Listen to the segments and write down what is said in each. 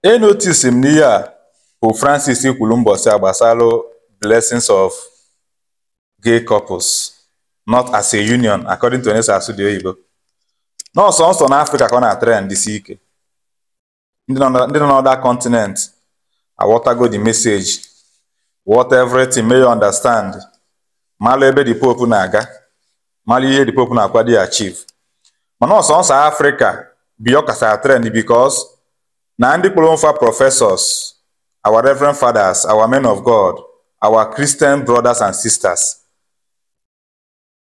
Enotis m n'ihe a Pope Francis kwuru ụbọchị a blessings of gay couples not as a union according to onye si asụ dị oyibo nọọsọ nsọ n'Afrịka ka ọ na-atara ndị ike ndị nọ n'ọda continent aghọtago the message what everything may you understand malụ ebe the Pope na-aga malụ ihe the Pope na-akwado ya achiv ma nọọsọ nsọ Afrịka bi ọ trend because na ndị professors our reverend fathers our men of god our christian brothers and sisters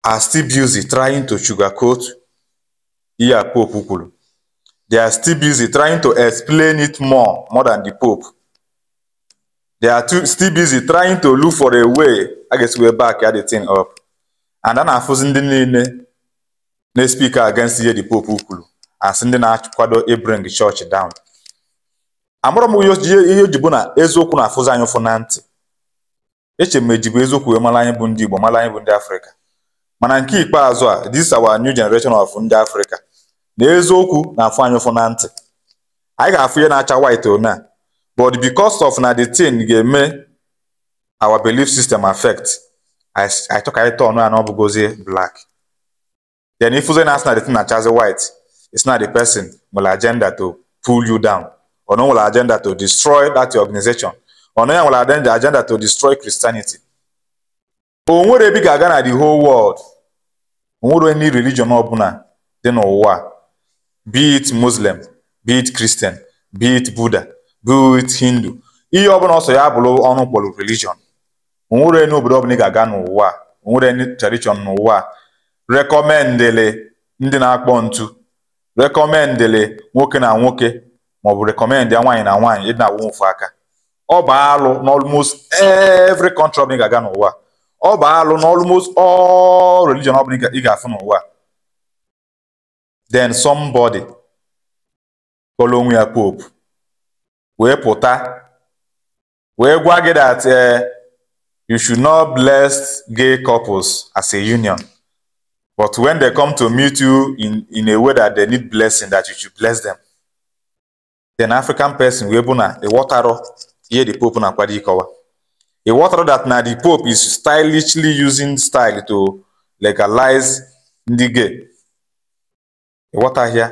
are still busy trying to sugarcoat the pope Ukulu. they are still busy trying to explain it more more than the pope they are too, still busy trying to look for a way i guess we're back at the thing up and then I'm ndị the speaker against the pope out to ndị bring the church down amụrụ m ihe o na eziokwu na-afụzi anyị ụfụ na ntị eche m eji eziokwu wee mara anyị bụ ndị Igbo mara anyị bụ ndị Afrịka mana nke ikpeazụ a this our new generation of ndị Afrịka na eziokwu na-afụ anyị ụfụ na ntị anyị ga-afụ ihe na-acha white one but because of na the thing ga-eme our belief system affect anyị chọka anyị tọn ya na ọ bụgozie black then ifuzi na asị na the thing na-achazi white is not the person nwere agenda to pull you down ọ nwere agenda to destroy that organization ọ ya nwere agenda to destroy Christianity o nwere ebe ga-aga na the whole world o nwere any religion ọbụla dị n'ụwa be it Muslim be it Christian be it Buddha be it Hindu ihe ọbụla ọsọ ya bụrụ ọnụ kpọrọ religion o nwere obodo ọbụla ị ga-aga n'ụwa o nwere any tradition n'ụwa rekọmendịlị ndị na-akpọ ntu rekọmendịlị nwoke na nwoke maọbụ rekọmend ya nwaanyị na nwaanyị ịdị na-awụ ofu aka ọ bụ alụ n'ọlmost every country ọbụla ị ga-aga n'ụwa ọ bụ alụ n'ọlmost all religion ọbụla ị ga-afụ n'ụwa den somebody kpọrọ onwe ya pope wee pụta wee gwa gị that eh, you should not bless gay couples as a union but when they come to meet you in in a way that they need blessing that you should bless them then african person wee bụ na ịghọtarọ ihe the pope na-akwado ịkọwa ịghọtarọ that na the pope is stylishly using style to legalize ndị gay ịghọtahịa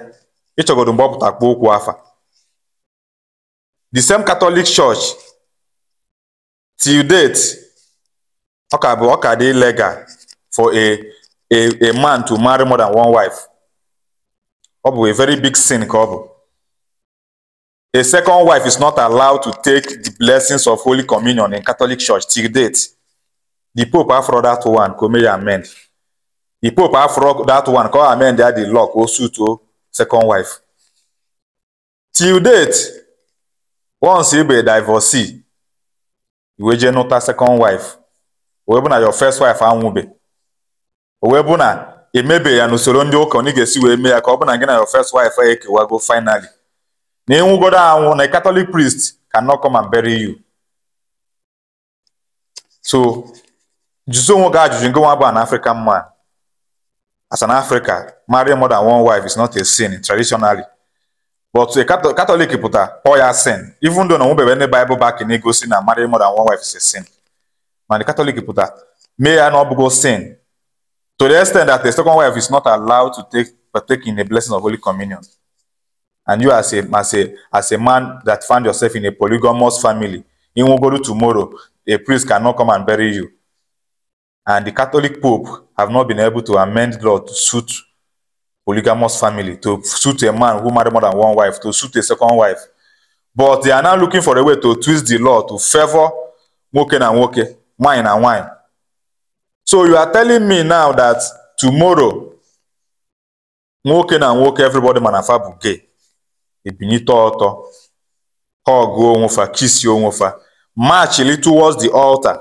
ịchọgodo mgbe ọ pụta kpụ ụkwụ afa the same catholic church till date ọ ka bụ ọ ka dị legal for a a a man to marry more than one wife ọ bụ a very big sin ka ọ bụ A second wife is not allowed to take the blessings of Holy Communion in Catholic Church till date. The Pope after that one kò mẹ́rin The Pope after that one kò amend that the law kò suit to second wife. Till date, once you be a divorcee, you will not a second wife. Ọ bụ na your first wife anwụbe. Ọ bụ na emebeghị ya n'usoro ndị ụka ọ na ị ga-esi wee mee ya ka ọ bụ na gị na your first wife ekewago finally. na ịnwụgodo anwụ na Catholic priest cannot come and bury you. So jụzie onwe gị ajụjụ nke nwa an African man. As an Africa, marrying more than one wife is not a sin traditionally. But a Catholic pụta all ya sin even though na onwebebe ndị Bible back na-egosi na marrying more than one wife is a sin. the Catholic pụta mee ya na ọ bụgo sin to the extent that a second wife is not allowed to take partake in the blessing of Holy Communion. and you as a as a as a man that found yourself in a polygamous family in Wogodu tomorrow a priest cannot come and bury you and the catholic pope have not been able to amend law to suit polygamous family to suit a man who married more than one wife to suit a second wife but they are now looking for a way to twist the law to favour nwoke na nwoke wine na wine so you are telling me now that tomorrow nwoke na nwoke everybody ma na gay ebinite ọtọ ha ọgụọ onwe fa chisie marchili towards the altar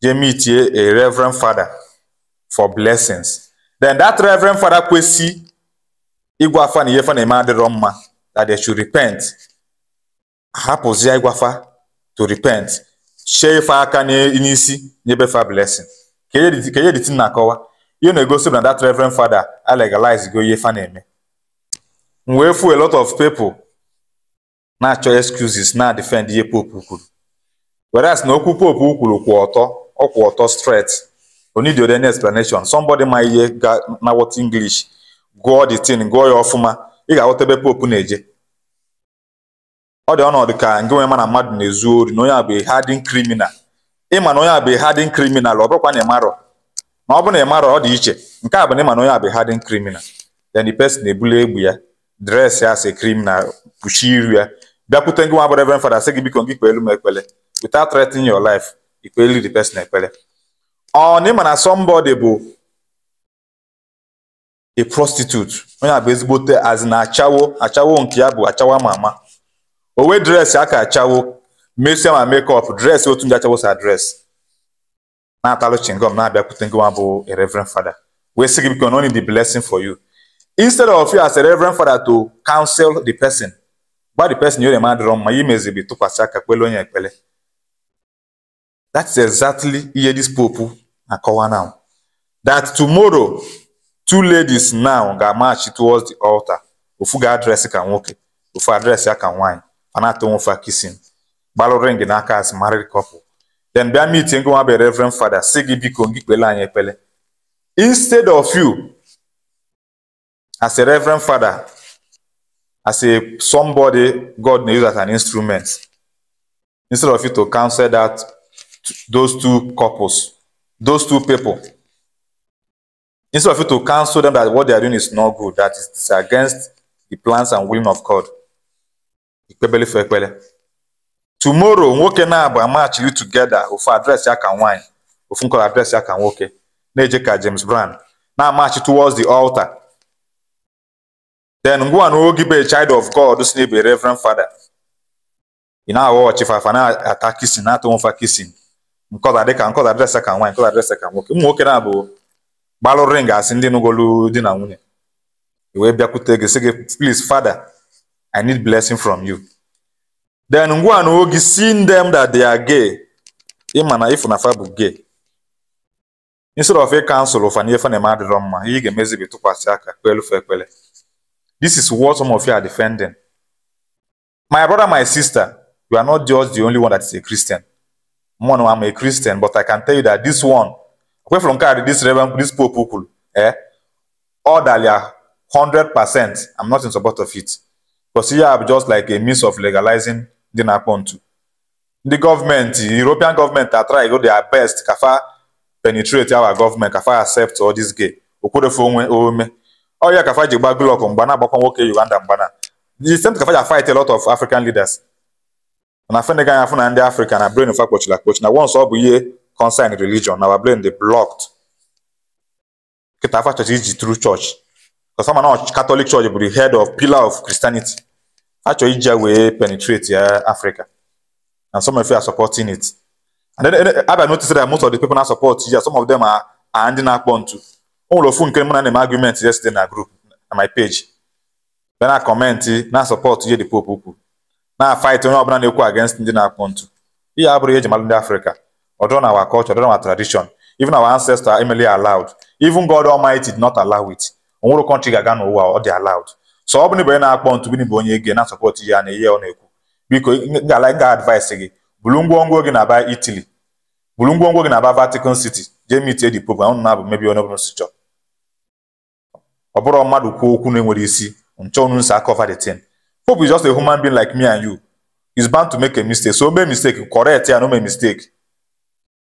dey meet a reverend father for blessings then that reverend father kwesị ịgwafa afa na ihe fa na-eme adịrọ mma that they should repent hapụzie ịgwafa to repent shee ife aka n'isi nyebe fa blessing ka ihe dịtị na-akọwa ihe na-egosi na that reverend father alegalize go ihe fa na-eme m wee fu a lot of people na-achọ excuses na defend ihe pope kwuru whereas na okwu pope kwuru kwụ ọtọ ọ kwụ ọtọ straight o need any explanation somebody ma ihe ga na what english gụọ the thing gụọ ya ọfụma ị ga-aghọta ebe pope na-eje ọ dị ọnọdụ ka nke nwe mana mmadụ na-ezu ori na onye a bụ hadin criminal ịma na onye a bụ hadin criminal ọ bụrụkwa na ị marọ ọ bụ na ọ dị iche nke a bụ na ịma na onye a bụ hadin criminal then the person na-ebuli egbe ya dresị asị krim na kpuchie iru ya bịakwute gị nwa bụ reverend father sị gị biko gị kpeelu m ekpele without threatening your life ikpelu the person ekpele ọ na ịma na somebody bụ a prostitute onye a bụ ezigbote azi na achawo achawo nke ya bụ achawo ama ama o wee aka achawo mesia ma makeup dresị otu ndị achawo sa dresị na-atalụ chingom na-abịakwute gị nwa bụ a reverend father wee sị gị biko na only the blessing for you instead of you as a reverend father to counsel the person gba the person nyere ma adịrọ mma ya imezibi tụkwasị aka kpele onye ekpele that is exactly ihe this pope na-akọwa now that tomorrow two ladies now ga march towards the altar ofu ga-adresị ka nwoke ofu adresị ya ka nwaanyị fanato nwofa kisin gbalụ ring n'aka as married couple then bịa meeting go nwa bụ reverend father si gị biko gị kpele anyị ekpele instead of you as a reverend father, as a somebody God may use as an instrument, instead of you to counsel that those two couples, those two people, instead of you to counsel them that what they are doing is not good, that is against the plans and will of God. Ikpebele fe ekpele. Tomorrow, nwoke na-abụ amachiri together ofu adreesị aka nwaanyị, ofu nkọrọ adreesị aka nwoke, na-eje ka James Brown, na-amachi towards the altar. Then ngwa na oge be child of God si n'ebe reverend father ị na-aghọ ọchịfafa na-ata kisin na-atụ nfa kisin nkọda dịka nkọda dịrịsa ka nwaanyị nkọda dịrịsa ka nwoke ụmụ nwoke na-abụ gbalụrụ ring asị ndị nụgolu di na nwunye i wee bịakwute gị sị gị please father I need blessing from you then ngwa na oge seeing them that they are gay ịma na ịfụnafa bụ gay instead of ịkansụl ụfa na ife na-eme adịrọ mma ihe ị ga-emezi bụ tụkwasị aka kpelufe This is what some of you are defending. My brother, my sister, you are not just the only one that is a Christian. Mono, I'm a Christian, but I can tell you that this one, away from Kari, this reverend, this poor people, eh, orderly, 100%, ah, I'm not in support of it. Because here I'm just like a means of legalizing the Napontu. The government, the European government are trying to do their best, kafa penetrate our government, kafa accept all this gay. Okodefo ome, ọrịa Kafa ji gba Goodluck mgba na-agbakwa nwoke Uganda mgba na the same Kafa ji fight a lot of African leaders na Senegal ya afụ na ndị Africa na brain fa kpochiri akpochi na once ọ bụ ihe concern religion na our brain dey blocked kịta afa chọchị iji true church kasama na Catholic church bụ the head of pillar of Christianity achọ iji ya wee penetrate ya Africa and some of you are supporting it and then abịa notice that most of the people na support you. some of them are ndị na-akpọ ntu ụlọ ofu nke m na na-eme argument yesterday na group na my page bịa na kọmentị na sọpọtụ ihe dị popu ukwu na-afaịtị onye ọbụla na-ekwu against ndị na-akpụ ntụ ihe abụrụ ihe eji ndị Afrịka ọdọ na our culture ọdọ na our tradition even our ancestors emely allowed even God Almighty did not allow it onwere kọntrị ga-aga n'ụwa ọ dị allowed sọ ọ bụ na ibe onye na-akpọ ntụ bụ onye ege na sọpọtụ ihe a na ihe ọ na-ekwu biko ngala ga advice gị bulu ngwongwo gị na-aba Italy bulu ngwongwo gị na-aba Vatican City jee mit edi popu ahụ na-abụ mebi onye ọbụla si chọọ ọ bụrụ mmadụ kwuo okwu na-enwere isi nchọnụ nsọ aka of the Pope is just a human being like me and you is bound to make a mistake so mee mistake correct ya no mee mistake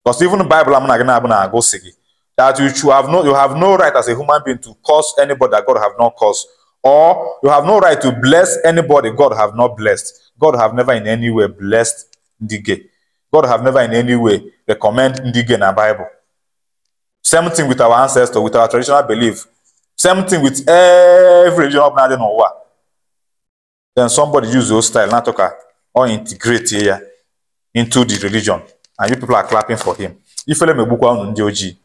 because even Bible am na gị na-abụ na-agụ si gị that you should have no you have no right as a human being to curse anybody that God have not caused, or you have no right to bless anybody God have not blessed God have never in any way blessed ndị gay God have never in any way recommend ndị gay na Bible same thing with our ancestors with our traditional belief Same thing with every religion up and down Then somebody use those style, not talk uh, or integrate here into the religion, and you people are clapping for him. If you let me book one on the OG,